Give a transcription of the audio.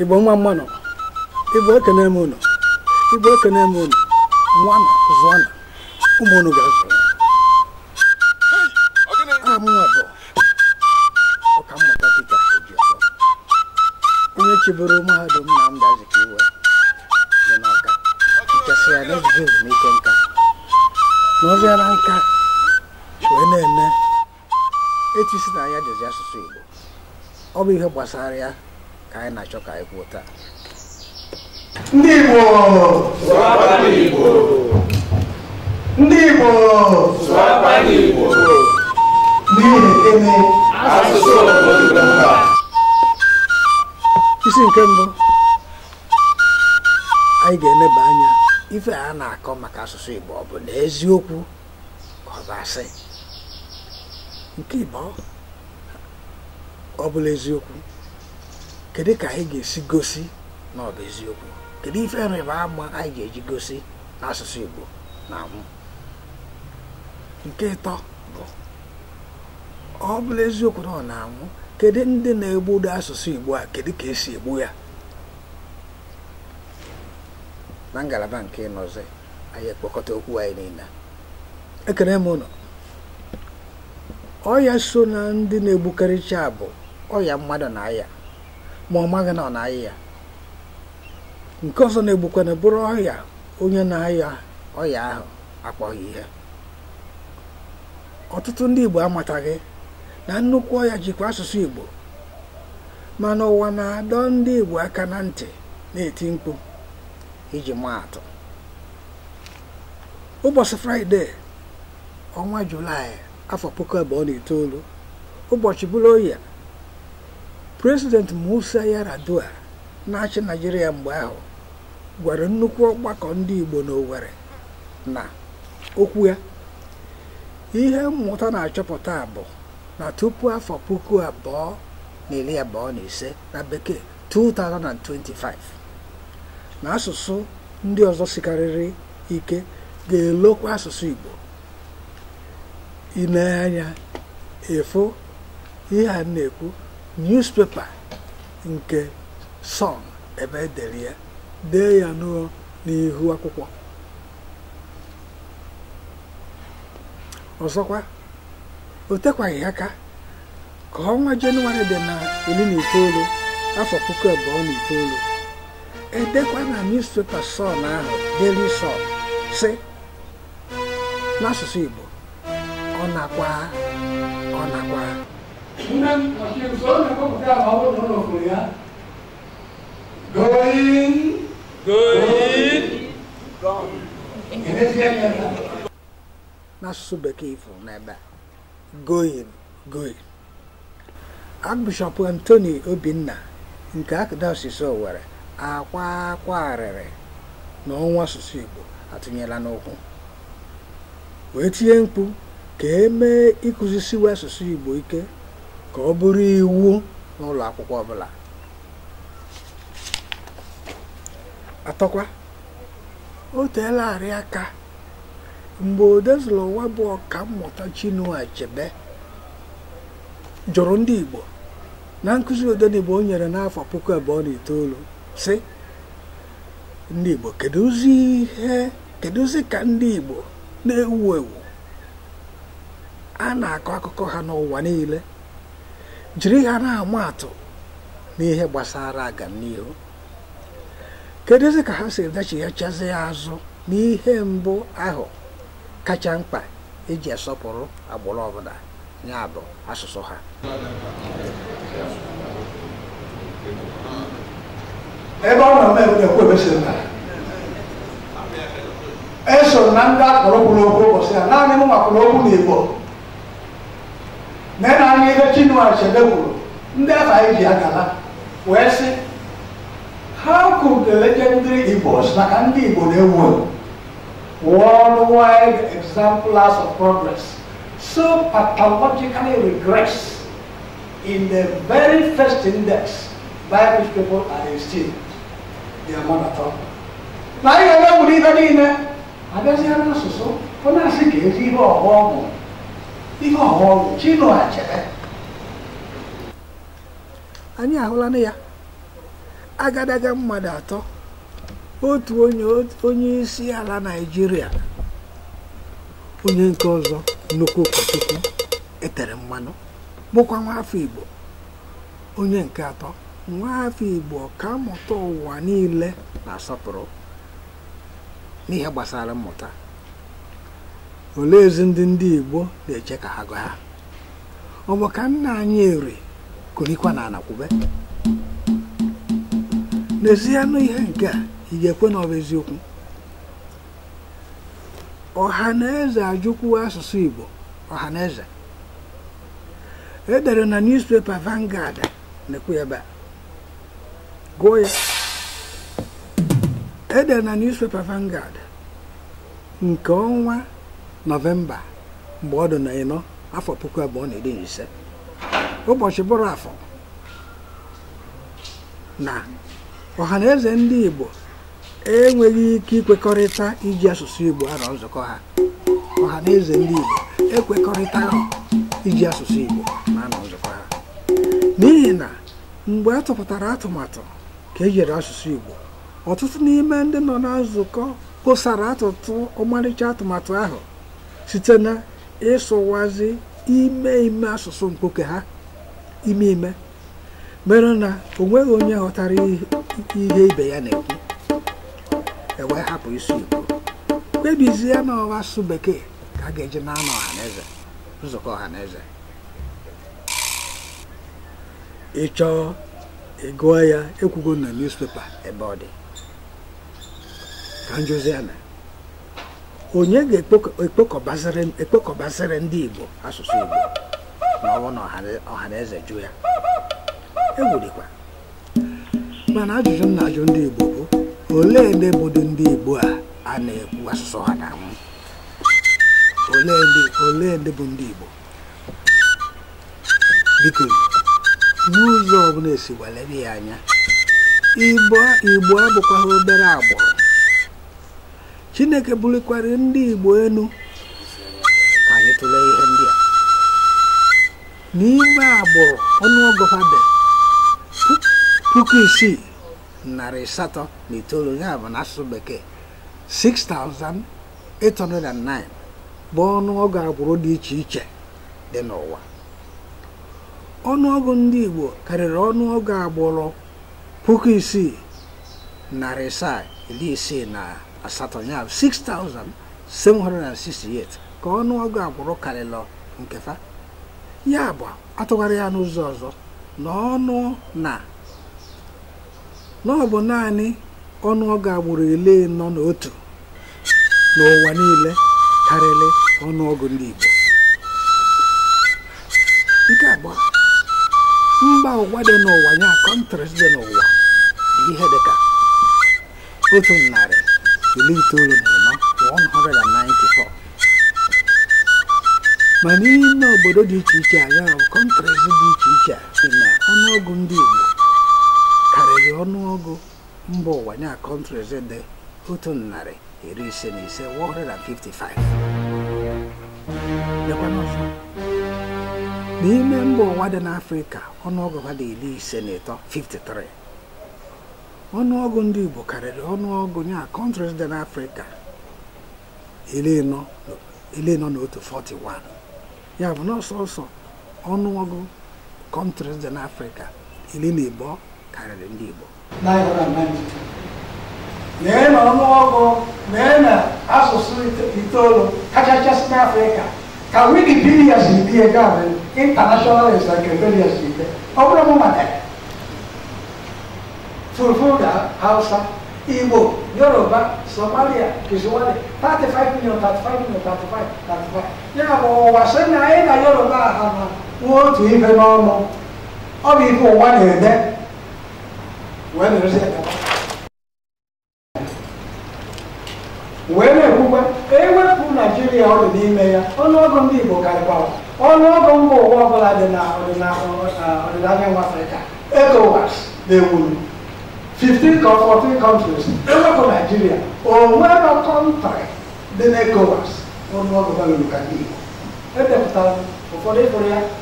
igbo nwa mmanụ igbo ekene eme ụnụ igbo na m ụnụ nwana zụana ụmụ ụnụ ga-azụ aha m nwa bụ ọkammụta Pita Ejiọfọ onye chịburu mahadum Nnamdi iwe dị n'Awka nkesị ya n'ejije ezumike nka n'oziara nka wee na-eme etu si na ya dezi asụsụ igbo ọ bụ ihe gbasara ya ka anyị na-achọ ka anyị kwuo taa ndị Igbo ndị Igbo n'ihi isi nke mbụ anyị ga-eleba anya ife a na-akọ maka asụsụ Igbo ọ bụ na eziokwu ka ọ asị nke Igbo ọ bụla eziokwu kedu ka anyị ga-esi gosi na ọ bụ eziokwu kedu ife nrịba ama anyị ga-eji gosi n'asụsụ Igbo na mụ nke ịtọ bụ ọ bụla eziokwu na ọ na-anwụ kedu ndị na-egbudo asụsụ Igbo a kedu ka esi egbu ya na ngalaba nke ịnọzi anyị ekpokọta okwu anyị niile m ọya so na ndị na-egbukarịcha bụ ọya mmadụ na aya ma ọ maghị na ọ na-ayị ya nke ọzọ na-egbukwana bụrụ ọrịa onye na ahịa ọrịa ahụ akpọghị ihe ọtụtụ ndị Igbo amataghị na nnukwu ọrịa jikwa asụsụ Igbo mana ụwa na-adọ ndị Igbo aka na ntị na-eti mkpu iji maa atụ ụbọchị fraịde ọnwa julaị afọ puku abụọ na itoolu ụbọchị bụrụ oyi President Musa Yar'Adua na-achị naijiria mgbe ahụ gwara nnukwu ọgbakọ ndị Igbo n'Owerri na okwu ya ihe mmụta na-achọpụta bụ na tupu afọ puku abụọ na iri abụọ na ise na bekee 2025 na asụsụ ndị ọzọ sikarịrị ike ga-elokwa asụsụ Igbo ile anya ihe a na-ekwu newspaper nke sun ebe edere ya dee ya n'ihu akwụkwọ ọzọkwa o tekwaghị aka ka ọnwa jenụwarị dị na iri na itoolu afọ puku abụọ na itoolu edekwa na newspepa sọn ahụ deli sọn si n'asụsụ Igbo ọ nakwa ọ nakwa Even Hakim Solomon come down, I won't know for ya. Going, going, gone. N'asụsụ bekee ifuru n'ebe a, going, going. Archbishop Anthony Obinna nke Archdiocese Owerri akwa akwa arịrị na ọnwa asụsụ Igbo atụnyela n'ụkwụ wee tinye mkpu ka e mee ịkụzisiwa asụsụ Igbo ike ka ọ bụrụ iwu n'ụlọ akwụkwọ ọbụla atọkwa o teelarị aka mgbe odezụlụ ụwa bụ ọka mmụta Chinua Achebe jụrụ ndị Igbo na nkụzi odenigbo o nyere n'afọ puku abụọ na itoolu si ndị Igbo kedụzi ihe kedụzi ka ndị Igbo na-ewu ewu a na-akọ akụkọ ha n'ụwa niile jiri ha na-ama atụ n'ihe gbasara aganihu kedụzi ka ha si dachighachazi ya azụ n'ihe mbụ ahụ kacha mkpa iji asọpụrụ agbụrụ ọbụla ya bụ asụsụ ha ebe ọ nọ na-ekwu ebe si nna eso na ndị akpọrọ kwuru okwu ụbọchị ya naanị mụ makwụrụ okwu n'Igbo nena anyị ebe Chinua Achebe kwuru ndị afọ anyị ji agala wee sị How could the legendary Igbos maka ndị Igbo na-ewu ewu worldwide exemplars of progress so pathologically regress in the very first index by which people are esteemed their mother tongue. na ihe na-ewuli ibe niile abịazighara n'asụsụ ọ na-asị ka ezi ihe ọghọm ihe ọhụrụ anyị ahụla na ya agadaga mmadụ atọ otu onye isi ala Naịjirịa onye nke ọzọ nnukwu ụkọchukwu etere mmanụ bụkwa afọ Igbo onye nke atọ afọ Igbo ka mmụta ụwa niile na-asọpụrụ n'ihe gbasara mmụta olee ndị ndị Igbo na-eche ka ha gụ ha ọ bụ ka nna anyị eri kurikwa na anakwube n'ezie anụ ihe nke a ị ga-ekwe na ọ eziokwu ọha na eze ajụkwuo asụsụ Igbo ọha na eze edere na newspaper Vanguard na-ekwu ebe a gụọ ya edere na nke ọnwa nọvemba mgbe ọ dị na ịnọ afọ puku abụọ na iri na ise ụbọchị bụrụ afọ na ọha eze ndị igbo enweghị ike ikwekọrịta iji asụsụ igbo arọ nzukọ ha igbo ekwekọrịta iji asụsụ igbo na anọ nzukọ ha n'ihi na mgbe a tụpụtara atụmatụ ka ejiri asụsụ igbo ọtụtụ n'ime ndị nọ na nzukọ atụtụ ọmarịcha atụmatụ ahụ site na ịsụwazi ime ime asụsụ mkpoke ha ime ime mere na o nweghị onye ghọtara ihe ibe ya na-ekwu ewe hapụ isi igbo kpebizie na ọwa asụsụ bekee ka a ga-eji na-anọ ọhaneze nzukọ ọhaneze ị ịgụọ ị ya ekwugo na newspaper ebe ọ dị ka njụzi na onye ga-ekpokọbasịrị ndị Igbo asụsụ Igbo ma ọ na ọha eze jụ ya egwurikwa mana ajụjụ m na-ajụ ndị Igbo bụ olee ebe bụdị ndị Igbo a a na-ekwu asụsụ ha na anwụ olee ndị bụ ndị Igbo biko n'ụzọ ọbụla esi gbalere ya anya Igbo abụkwaghị obere agbụrụ chineke bulikwara ndị igbo elu ka anyị ihe ndị a n'ime agbụrụ ọnụọgụ dị puku isii narị asatọ na itoolu ya bụ n'asụsụ bekee 6,809 bụ ọnụọgụ agbụrụ dị iche iche dị n'ụwa ọnụọgụ ndị igbo karịrị ọnụọgụ agbụrụ puku isii narị asaa iri isii na asatọ ya 6768 ka ọnụọgụ agwụrụ karịlọ nke fa ya bụ atụgharị ya n'ụzọ ọzọ na ọnụ na na ọ bụ naanị ọnụọgụ agbụrụ ile nọ n'otu n'ụwa niile karịrị ọnụọgụ ndị Igbo nke abụọ mba ụwa dị n'ụwa ya kọntris dị n'ụwa dị ihe dịka otu narị 딜리트를 itoolu 원하를 안 나이 mana ime obodo dị iche iche anya kọntresi dị iche iche dị na ọnụọgụ ndị Igbo karịrị ọnụọgụ mba ụwa nya kọntresi dị otu narị iri ise na ise 155 n'ime mba ụwa dị n'Afrịka ọnụọgụ ha dị iri ise na ịtọ 53 ọnụọgụ ndị Igbo karịrị ọnụọgụ ya kọntrịs dị n'Afrịka ele nọ n'otu 41 ya bụ n'ọsọ ọnụọgụ kọntrịs dị n'Afrịka ili na Igbo karịrị ndị Igbo lee na ọnụọgụ lee na asụsụ itoolu kachachasị n'Afrịka ka wikipedia si dị ya gaabụ international encyclopedia si dị ọ bụrụ mụ maka Fulfulda, Hausa, Igbo, Yoruba, Somalia, Kiswahili, 35 million, 35 million, 35, 35. Ya bụ ụwa sị na anyị na Yoruba ha na nwa otu ife n'ọnụ, ọ bụ ife ụwa na-ede, wee nọrọzi ekaba. wee na-ekwukwa ewepụ Naijiria ọ dị n'ime ya ọnụọgụ ndị Igbo karịkwawa ọnụọgụ mba ụwa ọbụla dị na ọdịnaya nwa Afrịka ECOWAS na-ewuru 15 or 14 countries, except for Nigeria, or whatever country no na na-ekowas ọnụọgụ balụrụ ka ndị Igbo edepụtara ụfọdụ ịfụrụ ya